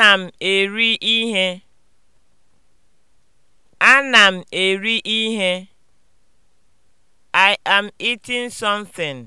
Ana m eri ihe. Ana m eri ihe. I am eating something.